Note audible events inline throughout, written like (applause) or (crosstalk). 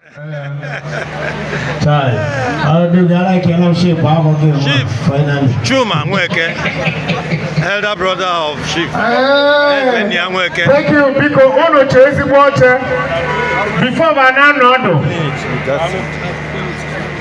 Sorry. I'll do that. I cannot ship. I'm okay. Ship. Finally. Chuma Mweke. Elder brother of Chief. Hey. Thank you. Biko, uno chezi mwote. Before banana, no. That's it.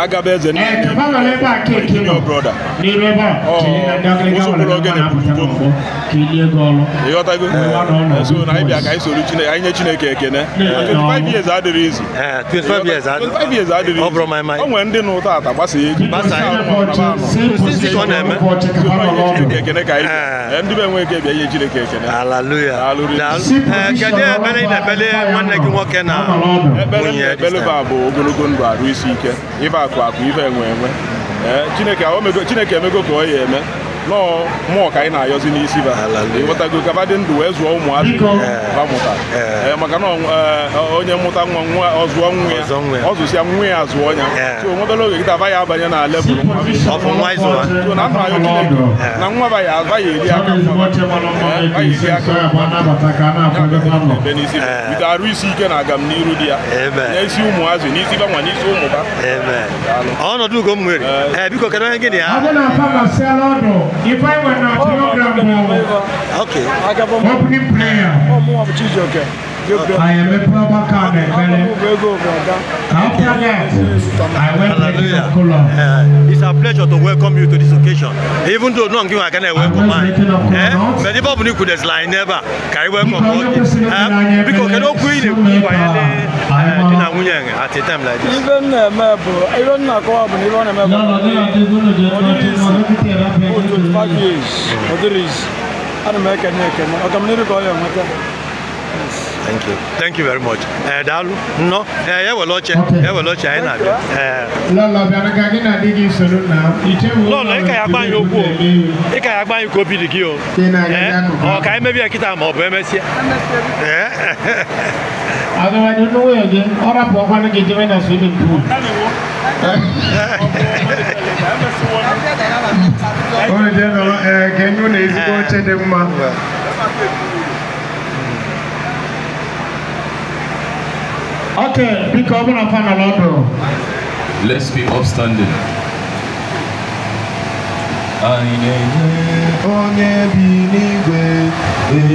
agaba eze nne ịghọtago so na anyị bịa ka anyị soro Chineke anyị nye Chineke ekene 25 eh, nwere ndị nụ ụta ata gbasa ego ekene ka anyị eh. Eh, ndị be enwe ike bịa nye Chineke ekene ekpere bụ ogologo ndụ arụ isi ike ịba akụ akụ ife enwe enwe chineke emego ka ọ ya eme nọọ mmụọ ka anyị na-ayọzi n'isi ba ịghọtago kaba dị ndụ wee zụọ ụmụazị mụta eh, maka na onye mụta nwa nwa ọzụọ nwa ya ọzụsịa nwa ya azụọ ya so nwebere oge gịta aba ya abanye na lebụl na na nwa ba ya aba aka nwa arụ isi ike na agam eh. Eh, ya ba nwa n'isi ụmụ I oh, okay. Opening oh, okay. Ayemepaba came After that, I went Hallelujah. to Kula. Uh, it's a pleasure to welcome you to this occasion. Even though no one can I welcome man. Eh? But if Bible could as line never carry welcome you. Because cannot queen the queen by any at a time like this. Even a mebo, I don't know what happened. Even a mebo. No, no, no. What is five years? What is? I don't make a neck. I'm not going to call you. Thank you. Thank you very much. eh daalụ no eh ya were oche na-abịa. Lọlọ ịka ya agba anyị okwu o ịka ya agba anyị eh? oh, ka obi dị gị ọ ka anyị mebie (laughs) eh kịta eh. ma ọ bụ emesịa ya swimming pool. nọ na ezigbo dị mma. Ok, biko ọ bụrụ afa nọrọ ọdụ. Let's be upstanding. Anyị na-enye onye bi n'igwe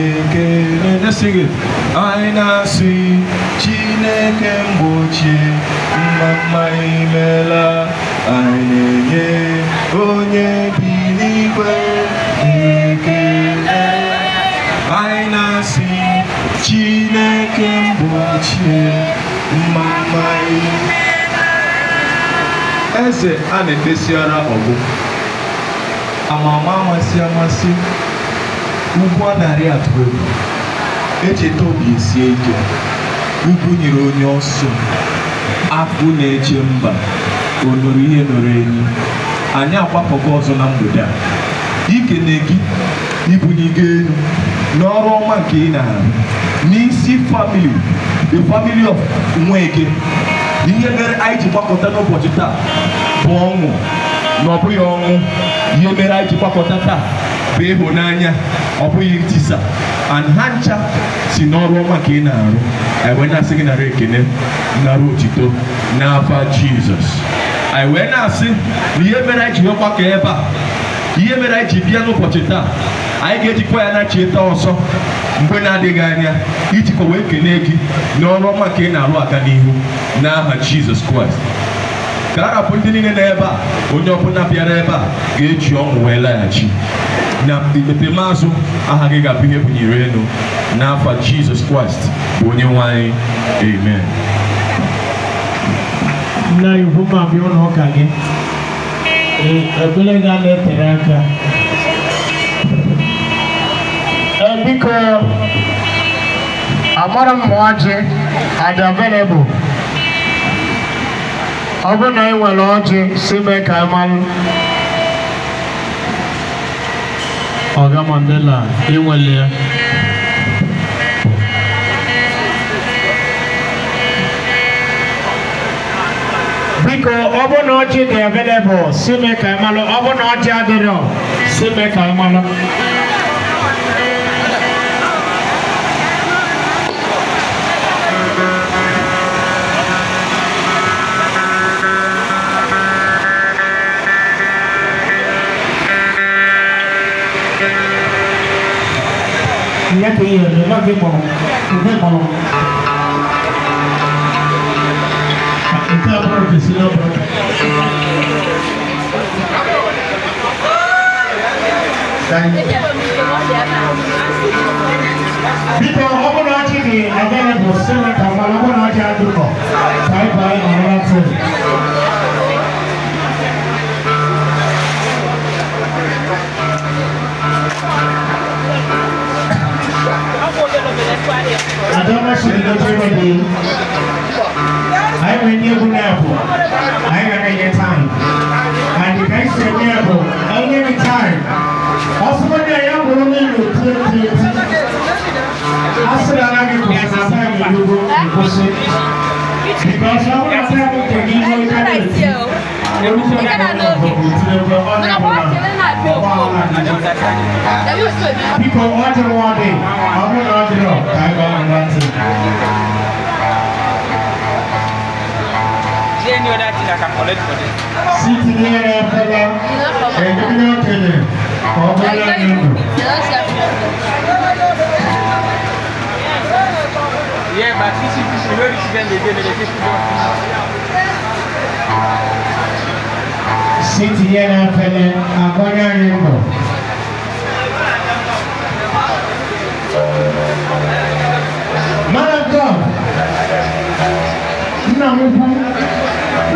ekele na-esighị. Anyị na-asị Chineke mgbochie mma imela. Anyị na-enye onye bi n'igwe ekele. Anyị na-asị Chineke mgbochie eze a na ara ọgụ amama amasị amasị ugwu a narị atụ egwu echeta obi esie ike ugwu nyere onye ọsọ akpụ na-eche mba onuru ihe nụrụ enyi anyị agbapụgo ọzọ na mgbede a ikene gị ibunye gị elu n'ọrụ ọma nke ị na-arụ n'isi famili the family of nweke ihe mere anyị ji gbakọta n'ụbọchị taa bụ ọnwụ na ọ bụghị ọnwụ ihe mere anyị ji gbakọta taa bụ ịhụnanya ọ bụghị ntisa and ha ncha si n'ọrụ ọma ka ị na-arụ anyị e wee na-asị gị nara ekene nara otito n'afa jizọs anyị e wee na-asị na ihe mere anyị ji nwekwa ebe a ihe mere anyị ji bịa n'ụbọchị taa anyị ga-ejikwa ya na-achịta ọsọ mgbe na-adịghị anya iji wee kene gị na ọrụ ọma ka ị na-alụ aka n'ihu n'aha Jizọs Kraịst ka a rapụ ndị niile n'ebe ebe a onye ọbụla bịara ebe a ga-eji ọṅụ wee laghachi na ikpete maazụ aha gị ga-abụ ihe bụnyere elu n'afọ Jizọs Kraịst bụ onye nwe anyị amen nna igwu ma bịa ụlọ ụka gị ekpere ga na-etere aka biko amara mụọjị adị available ọ bụ na ị e nwere ọjị si mee ka ị malụ ọga mandela ị nwere ya biko ọ bụ na ọjị dị available si mee ka ị malụ ọ bụ na ọjị adịrọ si mee ka ị malụ 家可以有流量推广，股票广。Está porque si no, Bíkọ́ ọmọ náà ti di ẹgbẹ́ rẹ̀ bọ̀ sẹ́wọ̀n kàwọn ọmọ náà ti àdúgbò. Báyìí kó sí. because I wanna tell you the reason why I do. Orúkọ náà wọ́n lọ People ọjọ́ wọn dé, Yeah, but this is this already student they did the fifth one. City yẹn afẹlẹ agbọnyá rẹ mọ. Malakom,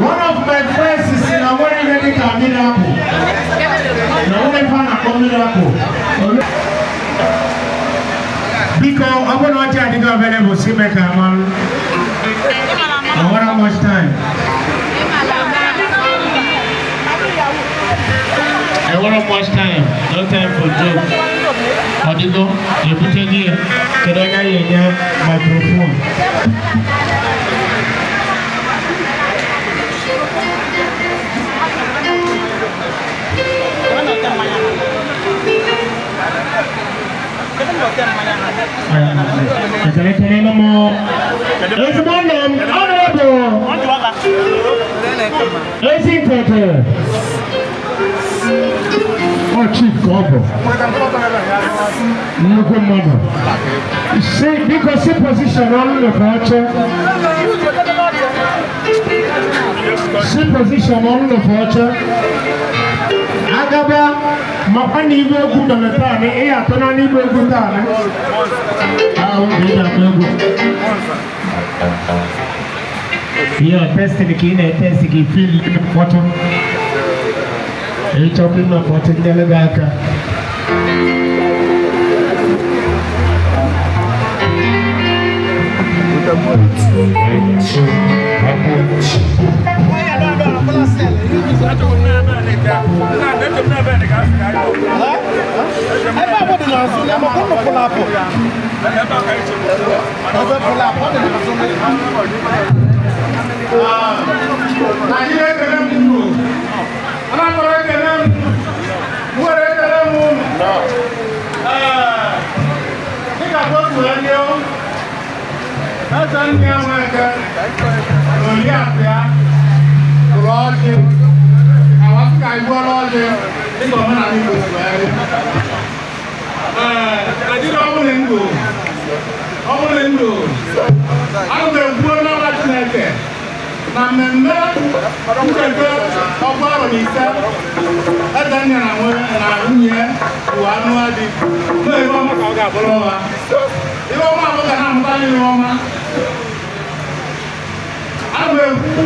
one of my friends is na wọ́n rí rẹ́dí kàmínà kù, na wọ́n rí fa na I want much time I want to time. No time for joke. Odigo, you put it here. Can I get your microphone? Jangan dokter mana? Tẹ̀lé-tẹ̀lé ló mọ. Èsì mọ́ nà ọ̀nàbọ̀. Èsì tẹ̀tẹ̀. Ọ chief ka ọ bụ. Nnukwu mmadụ. Si biko position ọnụ nọkọ oche. Si position ọnụ nọkọ oche. Agaba mọ̀kọ́ ní ibi egwu dọ̀lẹ̀ taa ni ị yà tọ́nà ní egwu taa ni. Àwọn ọmọ ìjà kọ egwu. Yọ tẹ́sítì kì í na tẹ́sítì kì í fíìlì ní mkpọtụ. Ịchọpụ ịma mkpọtụ ndị aka. nanso na ma kono pull up ọbẹ pull up ọdẹ na so mẹ. Nàìjíríà kẹlẹ́ mú mú anakọrọ kẹlẹ́ mú mú wẹrẹ kẹlẹ́ mú mú. Nígbà tó tù ẹ́ ní ọ́, ẹ̀sẹ̀ ń ní àwọn ẹ̀kẹ́ lórí àfíà kúrọ̀ ọ́ ṣe àwọn Áfíríkà ìgbọ́ lọ́ọ́ ṣe nígbà wọn náà ní gbogbo ẹ̀ rí adịrị ọbụla ndụ ọbụla ndụ a ga-egbuo n'ọla chineke na mmemme ncheta ọkwa arọ na ise edenya na nwunye bụ anụ adị na-ere ọma ka ọ ga-abụrụ ọma ihe ọma abụghị ha mụta anyị ọma a ga-ekwu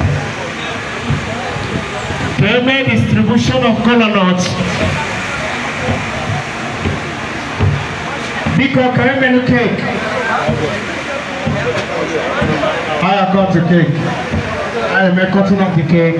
Amen distribution of kola nuts. Biko ka e menu cake. I have got the cake. I am cutting up the cake.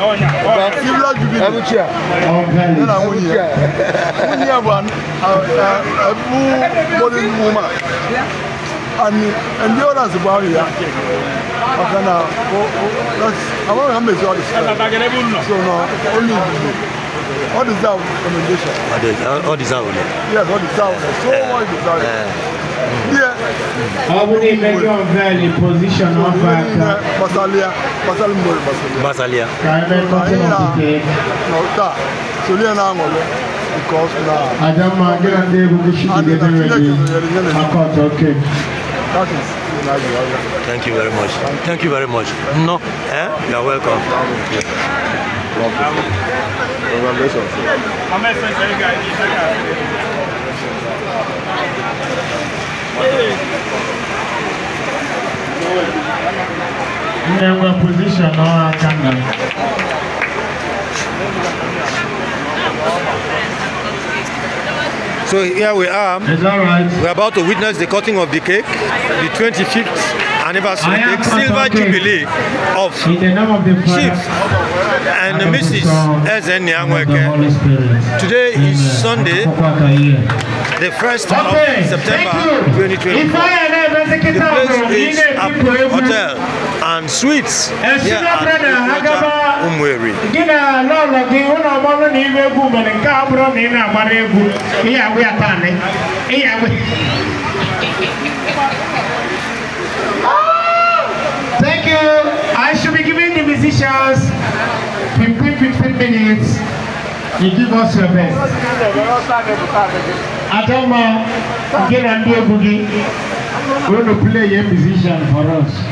serious jubilee ẹnu chia ẹnu na nwunye ya nwunye ya bụ ebu modern woman and endurance bụ ahụ ya ọka na amaghị ha so na only jubilee all deserve commendation. All deserve, all deserve. Yes, all deserve. So much deserve. make your very position of uh, Basalia Basal Basalia Nauta Sulia na ngolo because na Adama gina okay Thank you very much. Thank you very much. No, eh? You're welcome. Congratulations. na-enwe pozishọn ọrụ aka nna So here we are. Is that right? We're about to witness the cutting of the cake, the 25th anniversary, the silver jubilee of Chief and Mrs. Ezen Nyangweke. Today is Sunday, the 1st of September 2024. The place is Apple Hotel and Suites here at Umweri. Thank you. musicians, 15, 15 minutes, you give us your best. Adama, again, I'm going to play a musician for us.